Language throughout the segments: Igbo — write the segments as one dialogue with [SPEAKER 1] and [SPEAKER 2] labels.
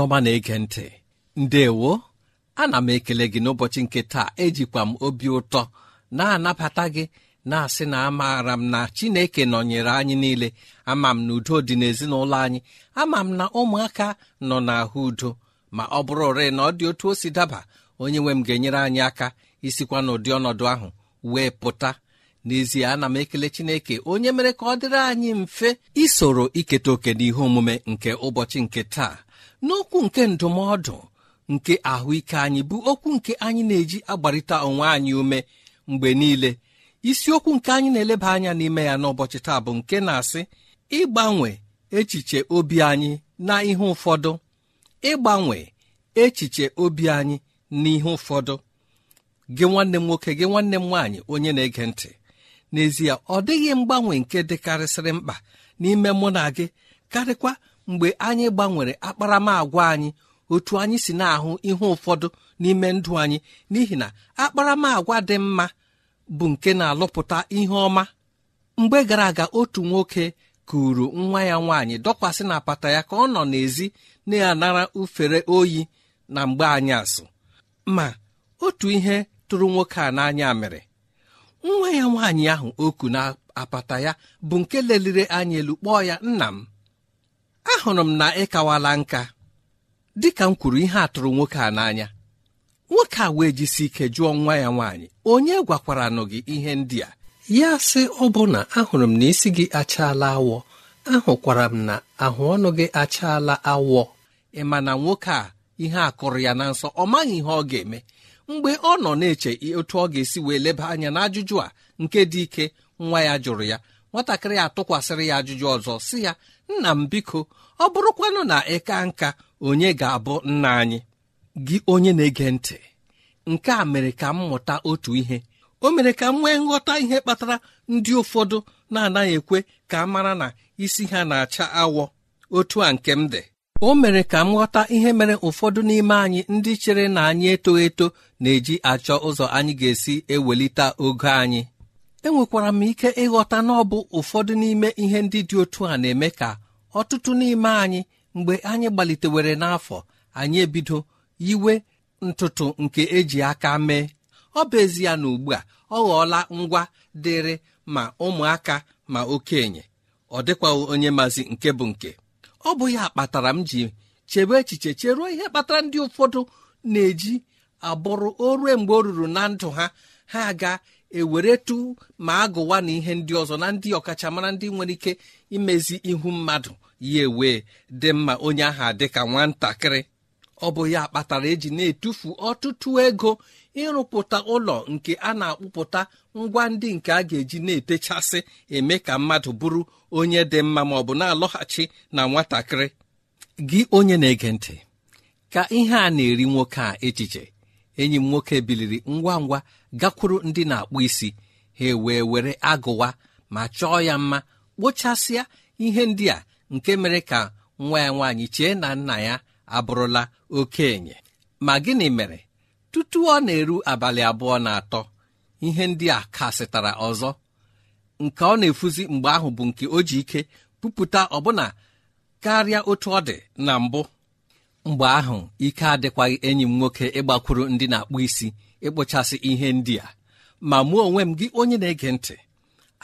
[SPEAKER 1] onye ọma na-ege ntị ndewo ana m ekele gị n'ụbọchị nke taa ejikwa m obi ụtọ na-anabata gị na-asị na amaara m na chineke nọnyere anyị niile ama m na udo dị n'ezinụlọ anyị ama m na ụmụaka nọ n'ahụ udo ma ọ bụrụ ore na ọ dị otu o si daba onye nwe m ga-enyere anyị aka isikwa n'ụdị ọnọdụ ahụ wee pụta n'ezie ana m ekele chineke onye mere ka ọ dịrị anyị mfe isoro iketa oke n'ihe omume nke ụbọchị nke taa n'okwu nke ndụmọdụ nke ahụike anyị bụ okwu nke anyị na-eji agbarịta onwe anyị ume mgbe niile isiokwu nke anyị na-eleba anya n'ime ya n'ụbọchị taa bụ nke na-asị ịgbanwe echiche obi anyị na ihe ụfọdụ ịgbanwe echiche obi anyị na ihe ụfọdụ gị nwanne m nwoke gị nwanne m nwaanyị onye na-ege ntị n'ezie ọ dịghị mgbanwe nke dịkarịsịrị mkpa n'ime mụ na gị karịkwa mgbe anyị gbanwere akparamagwa anyị otu anyị si na-ahụ ihe ụfọdụ n'ime ndụ anyị n'ihi na akparamagwa dị mma bụ nke na-alụpụta ihe ọma mgbe gara aga otu nwoke kuru nwa ya nwaanyị dọkwasị na apata ya ka ọ nọ n'èzí na-anara ufere oyi na mgbe anyị asụ ma otu ihe tụrụ nwoke a n'anya mere nwa ya nwaanyị ahụ oku na apata ya bụ nke leliri anya elu kpọọ ya nna m ahụrụ m na ịkawala nka dịka m kwuru ihe atụrụ nwoke a n'anya nwoke a wee jisi ike jụọ nwa ya nwaanyị onye gwakwaranụ gị ihe ndị a ya sị ọbụna ahụrụ m na isi gị achaala awọ ahụkwara m na ahụ ọnụ gị achaala awọ ị ma na nwoke a ihe a kụrụ ya na nsọ ọ maghị ihe ọ ga-eme mgbe ọ nọ na-eche otu ọ ga-esi wee leba anya na ajụjụ a nke dị ike nwa ya jụrụ ya nwatakịrị atụkwasịrị ya ajụjụ ọzọ si ya nna m biko ọ bụrụkwanụ na ịka nka onye ga-abụ nna anyị gị onye na-ege ntị nke a mere ka m mụta otu ihe o mere ka m nwee nghọta ihe kpatara ndị ụfọdụ na-anaghị ekwe ka a mara na isi ha na-acha awọ otu a nke m dị o mere ka m ghọta ihe mere ụfọdụ n'ime anyị ndị chere na anyị eto eto na-eji achọ ụzọ anyị ga-esi ewelite ogo anyị enwekwara m ike ịghọta na ọ bụ ụfọdụ n'ime ihe ndị dị otu a na-eme ka ọtụtụ n'ime anyị mgbe anyị gbalitewere n'afọ anyị ebido yiwe ntụtụ nke eji aka mee ọ bụ ezie na ugbu a ọ ghọọla ngwa dịrị ma ụmụaka ma okenye ọ dịkwaghị onye maazị nke bụ nke ọ bụ ya kpatara m ji chebe echiche cheruo ihe kpatara ndị ụfọdụ na-eji abụrụ o rue mgbe o ruru na ndụ ha ha aga eweretu ma agụwa na ihe ndị ọzọ na ndị ọkachamara ndị nwere ike imezi ihu mmadụ ya ewee dị mma onye aha dị ka nwatakịrị ọ bụ ya kpatara eji na-etufu ọtụtụ ego ịrụpụta ụlọ nke a na-akpụpụta ngwa ndị nke a ga-eji na-etechasị eme ka mmadụ bụrụ onye dị mma ma ọ bụ na-alọghachi na nwatakịrị gị onye na-ege ntị ka ihe a na-eri nwoke a echiche enyi m nwoke biliri ngwa ngwa gakwuru ndị na-akpụ isi ha wee were agụwa ma chọọ ya mma kpochasịa ihe ndị a nke mere ka nwa ya nwaanyị chee na nna ya abụrụla okenye ma gịnị mere tutu ọ na-eru abalị abụọ na atọ ihe ndị a kasịtara ọzọ nke ọ na-efuzi mgbe ahụ bụ nke o ji ike pupụta ọbụna karịa otu ọ dị na mbụ mgbe ahụ ike adịkwaghị enyi m nwoke ịgbakwuru ndị na-akpụ isi ịkpụchasị ihe ndị a ma mụọ onwe m gị onye na-ege ntị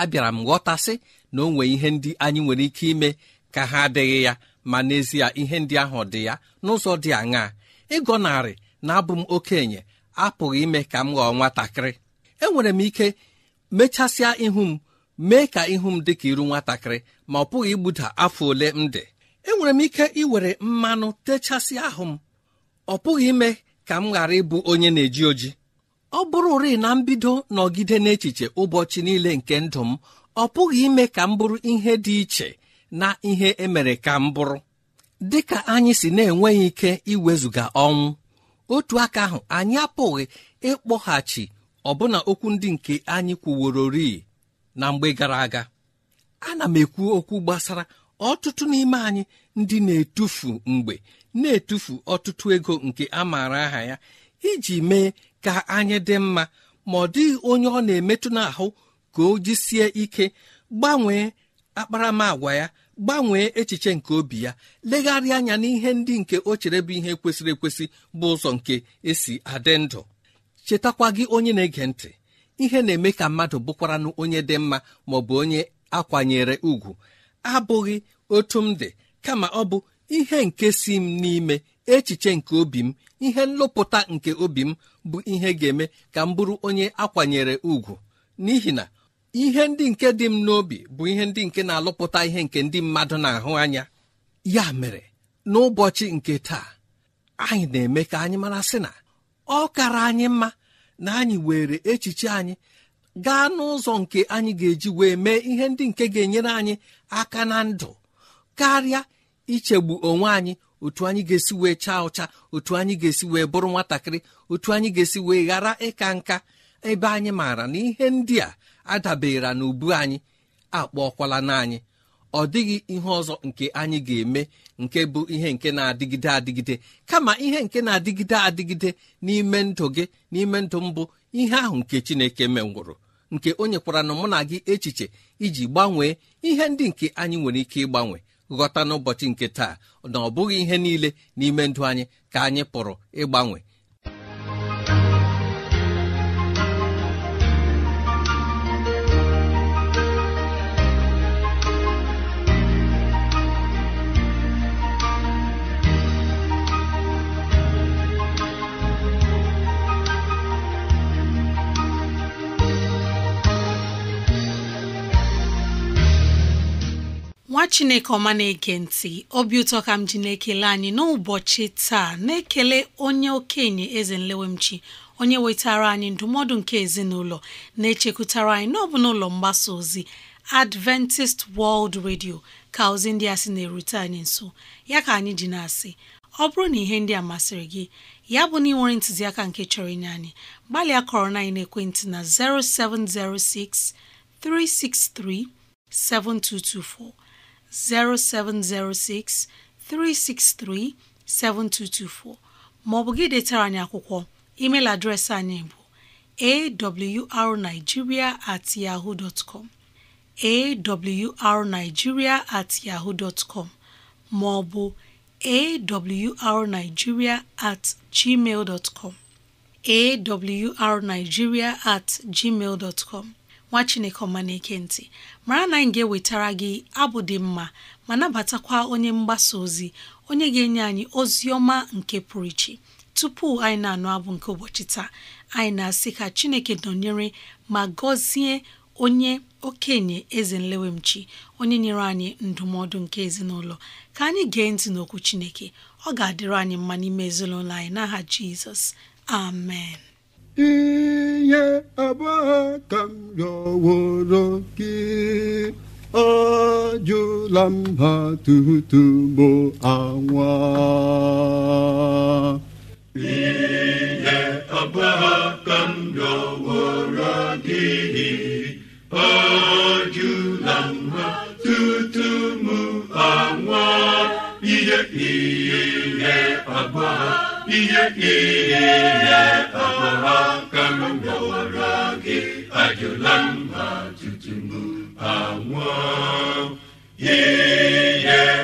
[SPEAKER 1] abịara m ghọtasị na o nwee ihe ndị anyị nwere ike ime ka ha adịghị ya ma n'ezie ihe ndị ahụ dị ya n'ụzọ dị aṅaa ịgọnarị na-abụ m okenye apụghị ime ka m ghọọ nwatakịrị enwere m ike mechasịa ihu m mee ka ihu m dị ka iru nwatakịrị ma ọ pụghị igbuda afọ ole m dị enwere m ike iwere mmanụ techasịa ahụ m ọ pụghị ime ka m ghara ịbụ onye na-eji oji ọ bụrụ ri na mbido nọgide n'echiche ụbọchị niile nke ndụ m ọ pụghị ime ka m bụrụ ihe dị iche na ihe emere ka m bụrụ dị ka anyị si na-enweghị ike iwezuga ọnwụ otu aka ahụ anyị apụghị ịkpọghachi ọbụna okwu ndị nke anyị kwuworori na mgbe gara aga ana m ekwu okwu gbasara ọtụtụ n'ime anyị ndị na-etufu mgbe na-etufu ọtụtụ ego nke a maara aha ya iji mee ka anyị dị mma ma ọ dịghị onye ọ na-emetụ n'ahụ ka o jisie ike gbanwee akparamagwa ya gbanwee echiche nke obi ya legharịa anya n'ihe ndị nke o chere bụ ihe kwesịrị ekwesị bụ ụzọ nke esi adị ndụ chetakwa gị onye na-ege ntị ihe na-eme ka mmadụ bụkwaranụ onye dị mma ma bụ onye akwanyere ugwu abụghị otu m dị kama ọ bụ ihe nke si m n'ime echiche nke obi m ihe nlụpụta nke obi m bụ ihe ga-eme ka m bụrụ onye akwanyere ugwu n'ihi na ihe ndị nke dị m n'obi bụ ihe ndị nke na-alụpụta ihe nke ndị mmadụ na-ahụ anya ya mere n'ụbọchị nke taa anyị na-eme ka anyị mara sị na ọ kara anyị mma na anyị were echiche anyị gaa n'ụzọ nke anyị ga-eji wee mee ihe ndị nke ga-enyere anyị aka na ndụ karịa ichegbu onwe anyị otu anyị ga-esi wee chaa ụcha otu anyị ga-esi wee bụrụ nwatakịrị otu anyị ga-esi wee ghara ịka nka ebe anyị maara na ihe ndị a adabere na ubu anyị akpọọkwala na anyị ọ dịghị ihe ọzọ nke anyị ga-eme nke bụ ihe nke na-adịgide adịgide kama ihe nke na-adịgide adịgide n'ime ndụ gị n'ime ndụ mbụ ihe ahụ nke chineke menwụrụ nke o nyekwara na mụ na gị echiche iji gbanwee ihe ndị nke anyị nwere ike ịgbanwe ghọta n'ụbọchị nke taa na ọ bụghị ihe niile n'ime ndụ anyị ka anyị pụrụ ịgbanwe
[SPEAKER 2] nwa chineke ọma na-ege ntị obi ụtọ ka m ji na-ekele anyị n'ụbọchị taa na-ekele onye okenye eze nlewemchi onye wetara anyị ndụmọdụ nke ezinụlọ na-echekwutara anyị n'ọbụ n'ụlọ mgbasa ozi Adventist World Radio ka ozi ndị a sị na-erute anyị nso ya ka anyị ji na-asị ọ bụrụ na ihe ndị a masịrị gị ya bụ na ị nwere ntụziaka nke chọrọ inye anyị gbalịa kọrọ na ekwentị na 0706 363 7224 0706 363 7224 maọbụ gị detara anyị akwụkwọ email adreesị anyị bụ awrnigeria at yahoo dot com awrnigeria at yahoo com maọbụ awrnigeria at gmail com awrnigeria at gmail com nwa chineke ọma na-eke ntị mara na anyị ga-ewetara gị abụ dị mma ma nabatakwa onye mgbasa ozi onye ga-enye anyị ozi ọma nke pụrụ iche tupu anyị na-anụ abụ nke ụbọchị taa anyị na-asị ka chineke nọnyere ma gọzie onye okenye eze nlewemchi onye nyere anyị ndụmọdụ nke ezinụlọ ka anyị gee ntị n'okwu chineke ọ ga-adịrị anyị mma n'ime ezinụlọ anyị n'aha jizọs amen
[SPEAKER 3] ihe abụọ ka m rịọworo gị ajụla m ha tutu bụ anwa ihe abụọ ka m rịọworo gị ajụla m ha tutu m anwa ihe ihe abụọ ihe ihe ọmụma ka m bịawara gị ajụla mba ma tutu m anwụọ
[SPEAKER 2] ihe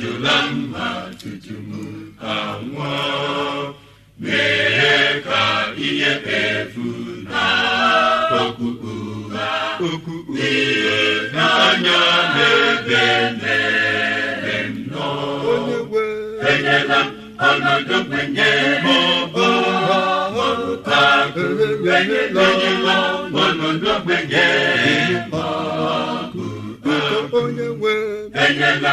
[SPEAKER 3] ajụla mma tutu m anwụọ mere ka ihe efu na okpukpu ha okpukpu ihe n'anya n'ebe mere nnọọ enyela ọnọdụ kwenye maọbụ ọbụka enyela ọnọdụ kwenye maọbụ ọbụka enyela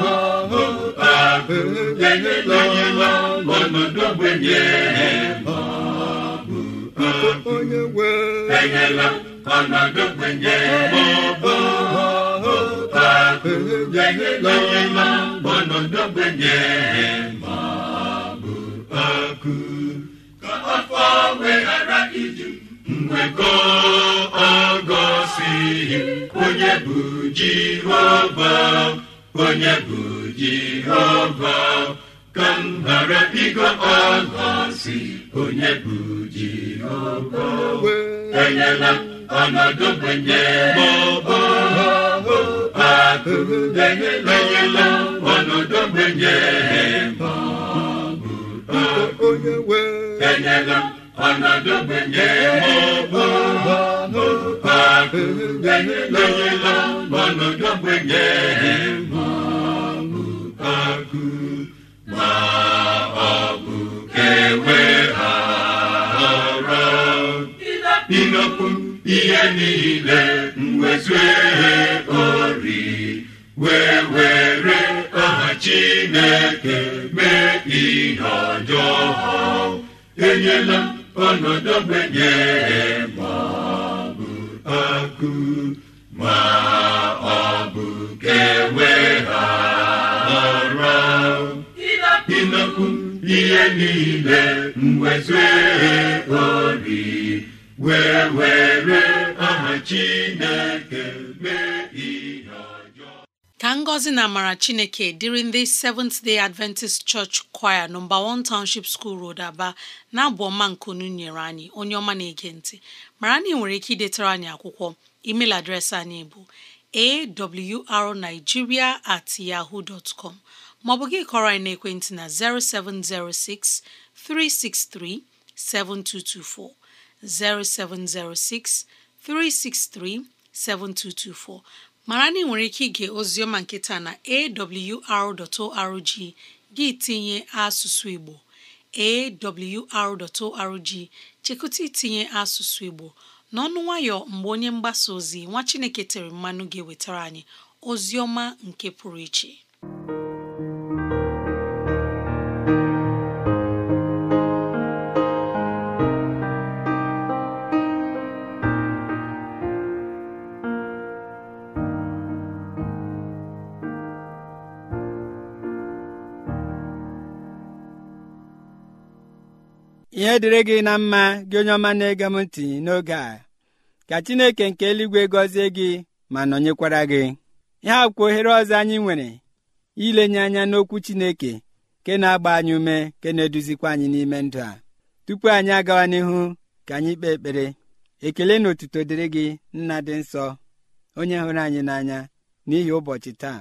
[SPEAKER 3] enyela onye nọ n'ọnọdụ ogbenye enyela ọnọdụ ogbenye maọbụ onye nọ n'ọnọdụ ogbenye maọbụ ka afọ weghara nwekọ onye bụ jehova onye bụ Jehova ka m ghara ịgọ ọla si onye bụ Jehova enyela m ọnọdụ gbenye maọbụ akụ enyela m ọnọdụ gbenye maọbụ akụ enyela ọnọdụ akụ enyela ọnọdụ gbenye ihe niile mwezue ori wee were aha chineke mee ihe ọjọọ enyela ọnọdụ benye ma ọ bụ akụ ma ọ bụ kewe ihe niile mwezue obi wee were aha chineke mee ihe
[SPEAKER 2] ka ngọzi na amara chineke dịrị ndị Seventh Day Adventist Church Choir nọmba one Township School Road Aba na-abụ ọma nkunu nyere anyị onye ọma na-ege ntị mara na ị nwere ike idetara anyị akwụkwọ email adreesị anyị bụ awrnigeria at yahoo dot com ma ọ bụ gị kọrọ anyị n'ekwentị na 0706 363 7224 0706 363 7224 ma na ị nwere ike ige oziọma nkịta na awr.org gị tinye asụsụ Igbo awr.org chekụta itinye asụsụ Igbo na ọnụ nwayọ mgbe onye mgbasa ozi nwa Chineke tere mmanụ ga-ewetara anyị ozi ọma nke pụrụ iche
[SPEAKER 4] ihe dịrị gị na mma gị onye ọma na-ege m ntị n'oge a ka chineke nke eluigwe gọzie gị ma nọnyekwara gị ihe akwụkwọ ohere ọzọ anyị nwere ilenye anya n'okwu chineke ke na-agba anyị ume ke na-eduzikwa anyị n'ime ndụ a tupu anyị agawa n'ihu ka anyị kpee ekpere ekele na otuto dịrị gị nna dị nsọ onye hụrụ anyị n'anya n'ihi ụbọchị taa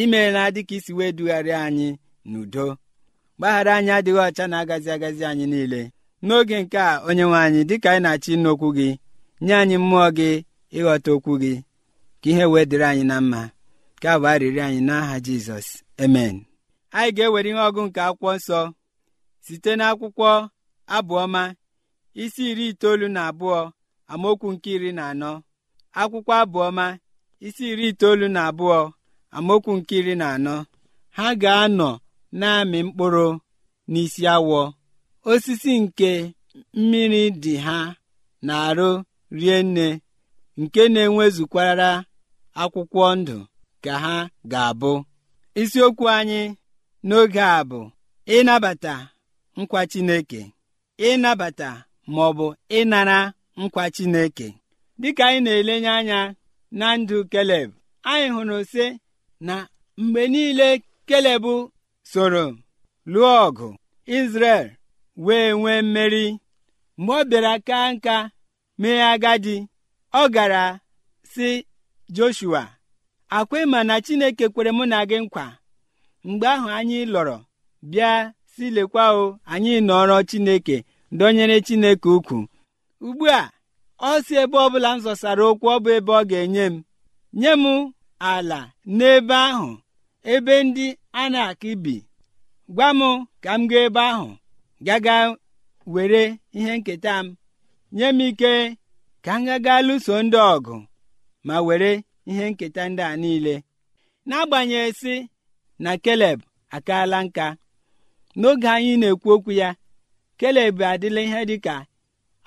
[SPEAKER 4] imeela dịka isi wee dugharịa anyị n'udo mgbaghara anyị adịghị ọcha na-agazi agazi anyị niile n'oge nke a onye nwe anyị dịka anyị na-achọ ịnụ okwu gị nye anyị mmụọ gị ịghọta okwu gị ka ihe wee dịrị anyị na mma ka bụ arịrị anyị n'aha jizọs emen anyị ga-ewere ihe ọgụ nke akwụkwọ nsọ site n'akwụkwọ abụọma isi iri itoolu na abụọ amaokwu nke iri na anọ akwụkwọ abụọma isi iri itoolu na abụọ amaokwu nke iri na anọ ha ga-anọ na-amị mkpụrụ n'isi awọ osisi nke mmiri dị ha na-arụ rie nne nke na enwezukwara akwụkwọ ndụ ka ha ga-abụ isiokwu anyị n'oge a bụ ịnabata nkwa Chineke ịnabata ma ọ bụ ịnara nkwa Chineke dịka anyị na-elenye anya na ndụ Keleb anyị hụrụ sị na mgbe niile Keleb soro lụọ ọgụ Izrel wee nwee mmeri mgbe ọ bịara ka nka mee agadi ọ gara si Joshua akwa mana na Chineke kwere mụ na gị nkwa mgbe ahụ anyị lọrọ bịa si lekwa o anyị nọrọ Chineke dọnyere Chineke ukwu ugbu a ọ si ebe ọbụla m zọsara okwu ọ bụ ebe ọ ga-enye m nye m ala n'ebe ahụ ebe ndị a na akọ bi gwa m ka m gaa ebe ahụ gaga were ihe nketa m nye m ike ka m gaga lụso ndị ọgụ ma were ihe nketa ndị a niile n'agbanyeghị si na keleb akaala nka n'oge anyị na-ekwu okwu ya keleb adịla ihe dịka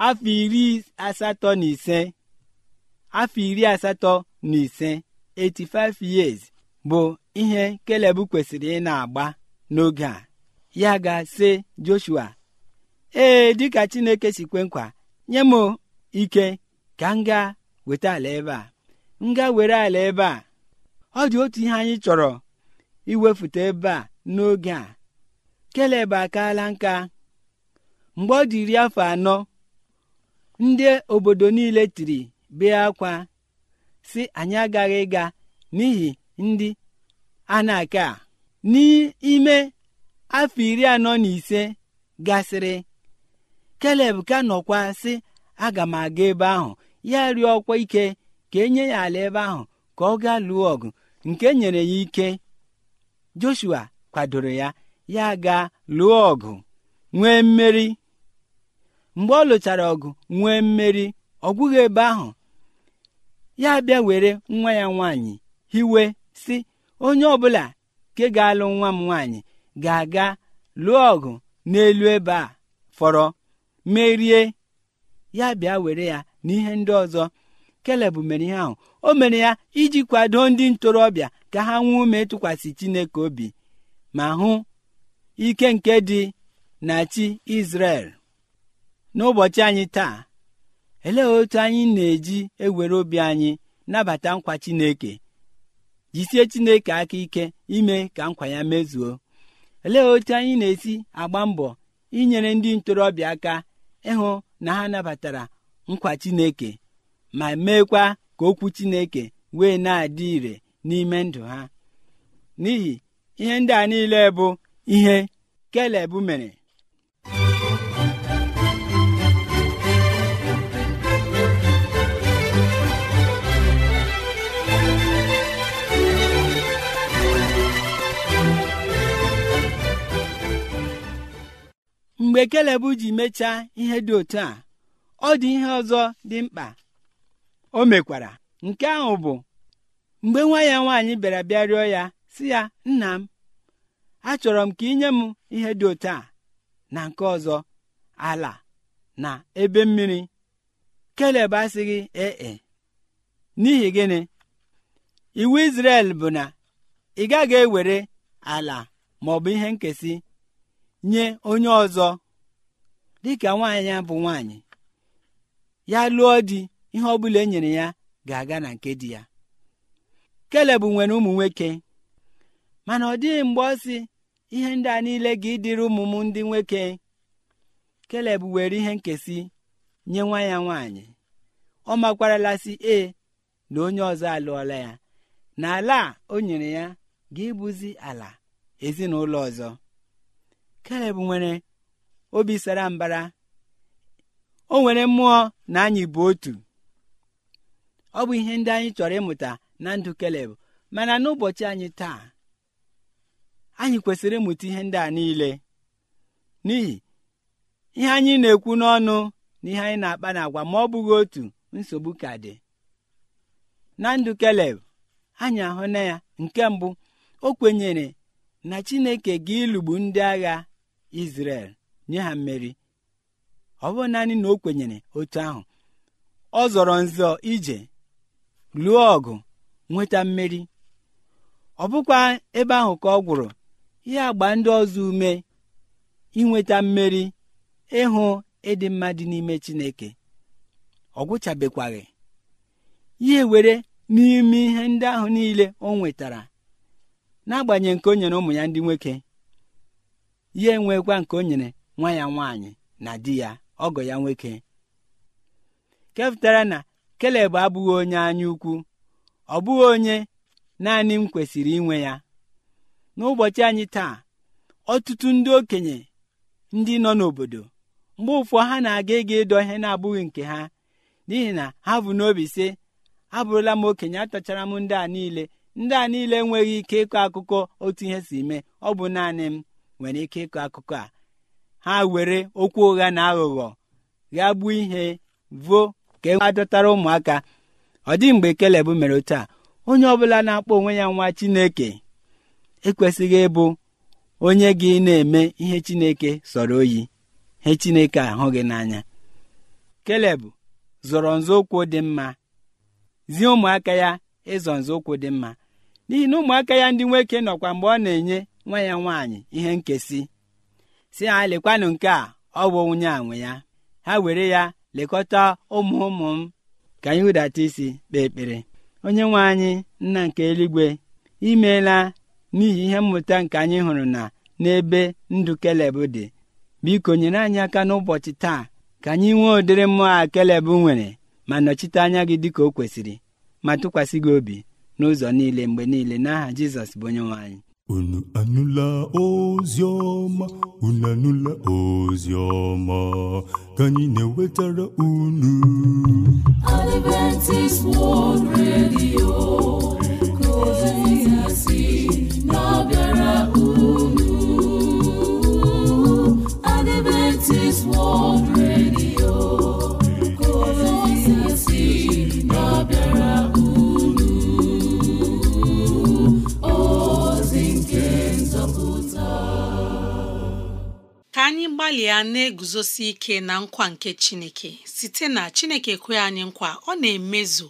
[SPEAKER 4] afọ iri asatọ na ise afọ iri asatọ na ise 85 years bụ ihe keleb kwesịrị ị agba n'oge a ya ga-sị Joshua ee dịka Chineke si kwe nkwa nye m ike ka m weta ala ebe a m were ala ebe a ọ dị otu ihe anyị chọrọ iwefute ebe a n'oge a Keleb akaala nka mgbe ọ dị iri afọ anọ ndị obodo niile tiri bee akwa si anyị agaghị ịga n'ihi ndị a na-aka n'ime afọ iri anọ na ise gasịrị keleb ka nọkwa sị aga m aga ebe ahụ ya rịọ ọkwa ike ka enye ya ala ebe ahụ ka ọ gaa lụọ ọgụ nke nyere ya ike joshua kwadoro ya ya gaa lụọ ọgụ nwee mmeri mgbe ọ lụchara ọgụ nwee mmeri ọ gwụghị ebe ahụ ya bịa were nwa ya nwaanyị hiwe si onye ọbụla nke ga-alụ nwa m nwaanyị ga-aga lụọ ọgụ n'elu ebe a fọrọ merie ya bịa were ya na ihe ndị ọzọ keleb mere ihe ahụ o mere ya iji kwado ndị ntorobịa ka ha nwee ume ịtụkwasị chineke obi ma hụ ike nke dị na chi Izrel n'ụbọchị anyị taa elee otu anyị na-eji ewere obi anyị nabata nkwa Chineke jisie Chineke aka ike ime ka nkwa ya mezuo olee otu anyị na-esi agba mbọ inyere ndị ntorobịa aka ịhụ na ha nabatara nkwa Chineke ma meekwa ka okwu Chineke wee na-adị ire n'ime ndụ ha n'ihi ihe ndị a niile bụ ihe Keleb mere mgbe keleb ji mechaa ihe dị otu a ọ dị ihe ọzọ dị mkpa o mekwara nke ahụ bụ mgbe nwa ya nwaanyị bịara bịa rịọ ya si ya nna m achọrọ m ka ị nye m ihe dị otu a na nke ọzọ ala na ebe mmiri keleb asịghị ee e, n'ihi gịnị iwu israel bụ na ị gaghị ewere ala ma ihe nkesi nye onye ọzọ dịka nwaanyị ya bụ nwaanyị ya lụọ di ihe ọ bụla e nyere ya ga-aga na nke dị ya kelebụ nwere ụmụ nwoke mana ọ dịghị mgbe ọ sị ihe ndị a niile ga ịdịrị ụmụ m ndị nwoke kelebụ were ihe nkesị nye nwa ya nwaanyị ọ makwaralasị ee na onye ọzọ alụọla ya na ala o nyere ya ga ịbụzi ala ezinụlọ ọzọ Kaleb nwere obi sara mbara o nwere mmụọ na anyị bụ otu ọ bụ ihe ndị anyị chọrọ ịmụta na ndụ Kaleb mana n'ụbọchị anyị taa anyị kwesịrị ịmụta ihe ndị a niile n'ihi ihe anyị na-ekwu n'ọnụ na ihe anyị na-akpa n'agwa ma ọ bụghị otu nsogbu ka dị na ndụ Kaleb anyị ahụ na ya nke mbụ o kwenyere na Chineke ga ịlụgbu ndị agha Izrel nye ha mmeri ọ bụ naanị na o kwenyere otu ahụ ọ zọrọ nzọ ije lụọ ọgụ nweta mmeri ọ bụkwa ebe ahụ ka ọ gwụrụ ihe agba ndị ọzọ ume inweta mmeri ịhụ ịdị mma dị n'ime Chineke ọ gwụchabekwaghị ihe were n'ime ihe ndị ahụ niile o nwetara n'agbanyeghị nke o nyere ụmụ ya ndị nwoke ya nwekwa nke o nyere nwa ya nwaanyị na di ya ọgọ ya nwoke kepụtara na keleb abụghị onye anya ukwu ọ bụghị onye naanị m kwesịrị inwe ya n'ụbọchị anyị taa ọtụtụ ndị okenye ndị nọ n'obodo mgbe ụfọ ha na-aga ịga ịdọ ihe na-abụghị nke ha n'ihi na ha bụ n'obi sị abụrụla m okenye atachara m ndị a niile ndị a niile enweghị ike ịkọ akụkọ otu ihe si mee ọ bụ naanị m nwere ike ịkọ akụkọ a ha were okwu ụgha na aghụghọ gbuo ihe vuo ka e adọtara ụmụaka ọ dị mgbe Keleb mere otu a onye ọbụla na-akpọ onwe ya nwa Chineke ekwesịghị ịbụ onye gị na-eme ihe Chineke sọrọ oyi ihe Chineke ahụghị n'anya Keleb zọrọ nzọụkwụ dị mma zie ụmụaka ya ịzọ nzọụkwụ dị mma n'ihi na ụmụaka ya ndị nwoke nọkwa mgbe ọ na-enye nwa ya nwaanyị ihe nkesi si ha lekwanụ nke a ọ bụ nwunye a nwe ya ha were ya lekọta ụmụ ụmụ m ka anyị hụdata isi kpee ekpere onye nwe anyị nna nke eluigwe imeela n'ihi ihe mmụta nke anyị hụrụ na n'ebe ndụ keleb dị biko nyere anyị aka n'ụbọchị taa ka anyị nwee ụdịrị mmụọ a keleb nwere ma nọchite anya gị dịka o kwesịrị ma tụkwasị gị obi n'ụzọ niile mgbe niile n'aha Jizọs bụ onye nwe anyị unu anụla ozi ọma unu anụla ozi ọma ka anyị na-ewetara unu
[SPEAKER 3] unu Adventist World
[SPEAKER 2] ka anyị gbalịa na-eguzosi ike na nkwa nke Chineke site na Chineke kwe anyị nkwa ọ na-emezu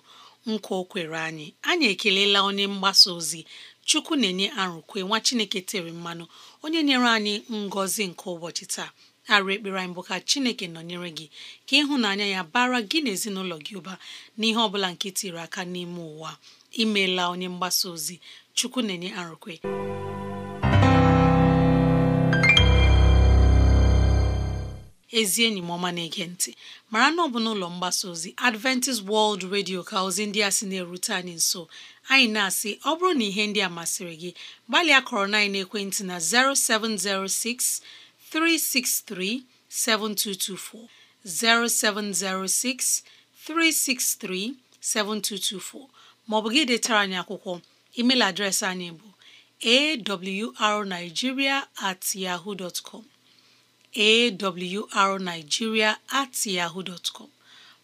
[SPEAKER 2] nkwa o kwere anyị anyị ekelela onye mgbasa ozi Chukwu na-enye arụkwe nwa Chineke tere mmanụ onye nyere anyị ngọzi nke ụbọchị taa arụ ekpere anyị bụ ka Chineke nọnyere gị ka ịhụnanya ya bara gị na ezinụlọ gị ụba n'ihe ọ bụla nke tiri aka n'ime ụwa imeela onye mgbasa ozi Chukwu na-enye arụkwe ezi enyi m ọma na-ege ntị mara na ọ bụ n'ụlọ mgbasa ozi Adventist World Radio ka ozi ndị a sị na-erute anyị nso anyị na-asị ọ bụrụ na ihe ndị a masịrị gị gbalịa kọrọ na ekwentị na 0706 363 7224 0706 363 7224 maọbụ gị detara anyị akwụkwọ email adreesị anyị bụ awrnigeria at yahoo dot awrnigeria at yahoo dot com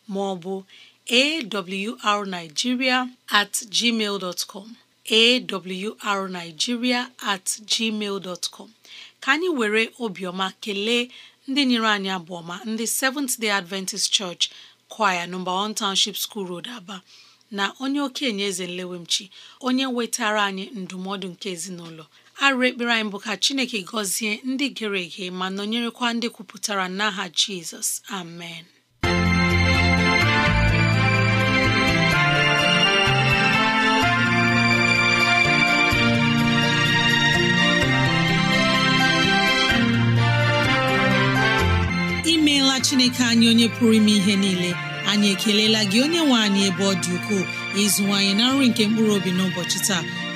[SPEAKER 2] maọbụ awrnigeria at gmail dot com awrnigeria at gmail dot com ka anyị were obiọma kelee ndị nyere anyị abụọma ndị Seventh Day Adventist Church kwaya nọmba on Township School Road Aba na onye okenye eze nlewemchi onye nwetara anyị ndụmọdụ nke ezinụlọ arụ ekpere anyị bụ ka Chineke gọzie ndị gere ege ma nọnyerekwa ndị kwupụtara n'aha Jizọs amen imeela Chineke anyị onye pụrụ ime ihe niile anyị ekelela gị onye nwe anyị ebe ọ dị ukwuu ịzụwanyị na nri nke mkpụrụ obi n'ụbọchị taa